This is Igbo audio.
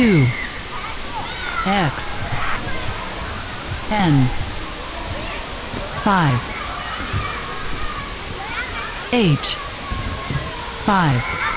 two X N five H five